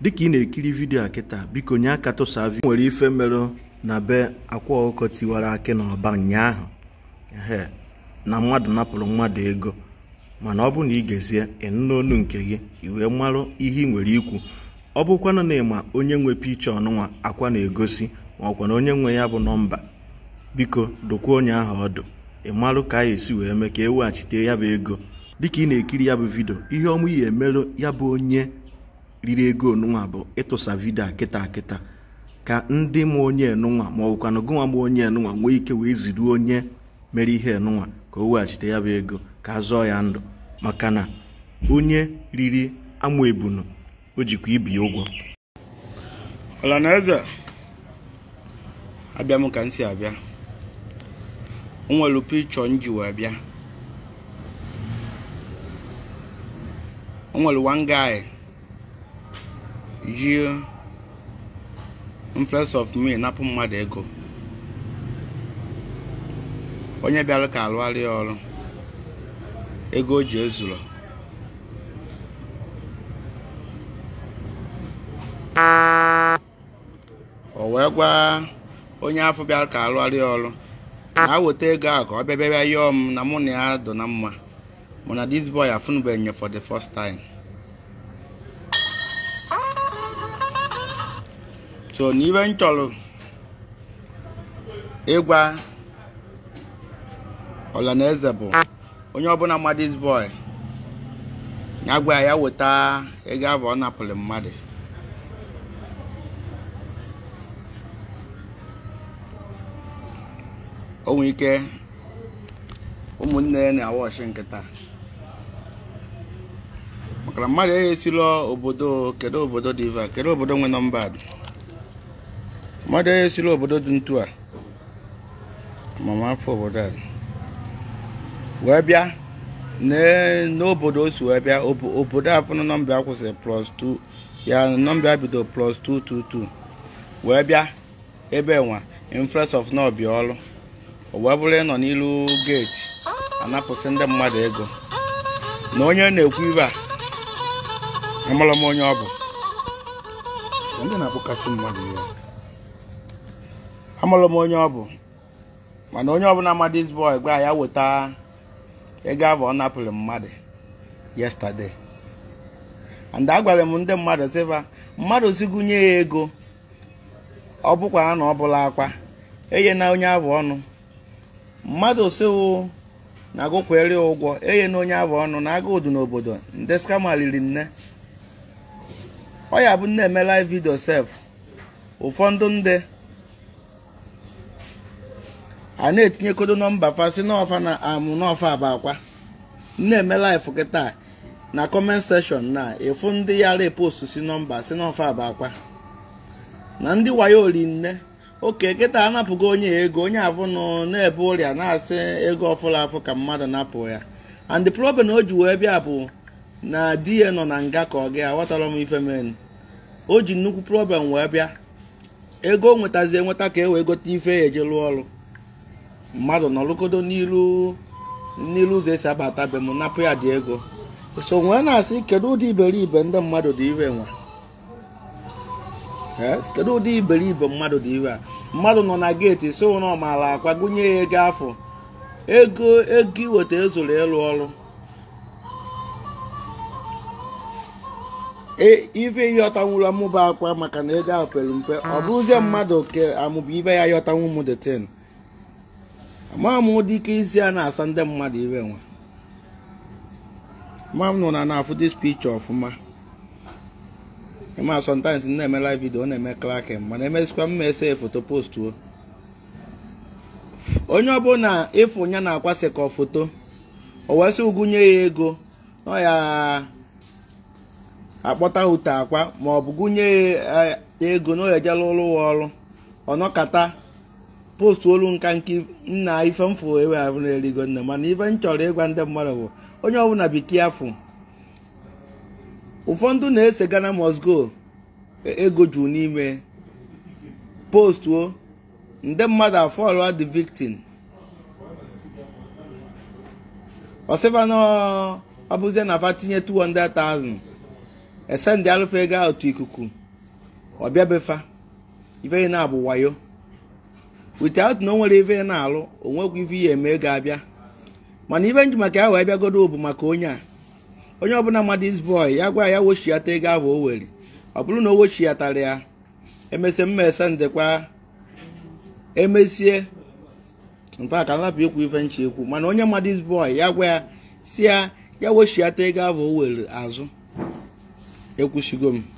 dịka ị na-ekiri vidio a kịta biko nye aka tụsa vi nwere ife merụ na be akwa ọkụkọ tiwara akị na ọba ụnyaahụ ehe na mmadụ napụrụ mmadụ ego mana ọ bụ na ị gezie ịnụnụ nke gị wee marụ ihe ị nwere ikwu ọ bụkwanụ na ịma onye nwe picha ọnụnwa akwa na-egosi ma ọkwa na onye nwe ya bụ nọmba biko dokwa onye ahụ ọdụ ịmarụ ka a esi wee mee ka e weghachite ya bụ ego dịka ị na-ekiri ya bụ vidio ihe ọmụ ya emerụ ya bụ onye riri ego onunwa bụ ịtụsa vidio akịta akịta ka ndị m onye enunwa ma bụkwa gụnwa m onye enunwa nwee ike wee ziri onye mere ihe enunwa ka o weghachite ya bụ ego ka a zọọ ya ndụ maka na onye riri amụ ebunu o jikwa ibi ụgwọ ọlanaeze nwere m jie influence of me napụ mmadụ ego onye bịara ka alụgharị ọrụ ego o ji ezuru o wee gwa onye afọ bịara ka alụgharị ọrụ na aweta ego ahụ ka ọ bịa bịa bịa yọọ m na mụ na ya dụ na mma mụ na boy afụnụbeghị nye for the first time so n'ibe m chọrọ ịgwa ọlanaeze bụ onye ọbụla madis boy ya gwa ya weta ego abụọ ọ napụrụ mmadụ o nwere ike ụmụnne ya na ọchị nkịta maka na mmadụ eghesila obodo kedu obodo dị iva kedu obodo nwe nọmba mmadụ onye siri obodo dị ntu a amamafọ obodo a wee bịa n'obodo o si wee bịa obodo afụnụ nọmba ya kwụsịrị plus 2 ya nọmba bido plus 222 wee bịa ebe nwa influence of n'ọbịa ọlụ wee bụrụ ịnọ n'ilu geeti anapụsị ndị mmadụ ego na onye na-ekwu ibe a amara m onye ọ bụ ndị na-akpọkasị mmadụ ya amụrụ m onye ọ bụ mana onye ọbụla amadis boy gwa ya weta ego abụ ọ napụrụ mmadụ yesterday and agwara m ndị mmadụ sịfa mmadụ sigụnye ya ego ọ bụkwa na ọ bụla akwa eye na onye abụ ọnụ mmadụ siwo na agụkwere ụgwọ eye na onye abụ ọnụ na agụ odu n'obodo ndị skama riri nne ọ ya bụ nna eme vidio sef ụfọdụ ndị a na-etinye kodo nọmba si n'ọfa na amụ n'ọfa bụ akwa na-eme laịfụ kịta na kọment sekshọn na efu ndị yara epost si nọmba si n'ọfa bụ akwa na ndị wayo rinne oke kịta anapụgo onye ego onye abụnụ na-ebe ụrịa na-asị ego ọfụla afụ ka mmadụ napụ ya and the problem o ji wee bịa bụ na di ya nọ na nga ka ọ gị aghọtara m ife men o ji nnukwu problem wee bịa ego nwetazi enweta ka e wee gote ife eje rụọ ọrụ mmadụ nọrụgodo n'ilu n'iru ụzọ esi abata be m napụ ya dị ego so nwee na-asị kedu ụdị iberibe ndị mmadụ dị iwe nwa kedu ụdị iberibe mmadụ dị a mmadụ nọ na geeti so ụra ọmala akwa gụnye ya ego afọ ego ego iweta ezuru ịlụ ọrụ e, ife yọtanwuru amụba akwa maka na ego ahụ pere mpe ọ bụrụzie mmadụ ke amụba ibe ya yọtanwu m the ten dị ike isi a na-asa ndị mmadụ iwe nwa mam nọ na na-afụ dis picture ọfụma ma sometimes na-eme live video na-eme klakin mana emesikwa mma ese foto postuo onye ọbụla ịfụ ya na-akwasị ka foto o wesị ụgụnye ya ego nọ ya akpọta ute akwa ma ọ bụ gụnye ya ego na o ejela ụlọ ọrụ ọnọkata postu olu nka nke nna ife ewe ahụ n'eligo nne mana ife m chọrọ ịgwa ndị mmadụ bụ onye ọbụla bekee afụ ụfọdụ na-ese Ghana must go e, ego juru n'ime postuo ndị mmadụ afọ the victim ọsịba na ọbụzie na afa tinye 200,000 esendị alụfe ego ikuku befa ife na-abụ wayo without na o nwere ife na-alụ o nwekwa ife ihe eme ga-abịa mana ife nji maka ya wee bịagodo bụ maka onye a onye ọbụla mmadụ is ya gwa ya wochiata ego ahụ o were ọ bụrụ na o wochiatara ya emesịa mmesa ndekwa emesie mfe aka napụ ikwu ife nche ekwu mana onye mmadụ is ya gwa ya si ya ya wochiata ego ahụ o were azụ ekwusigo m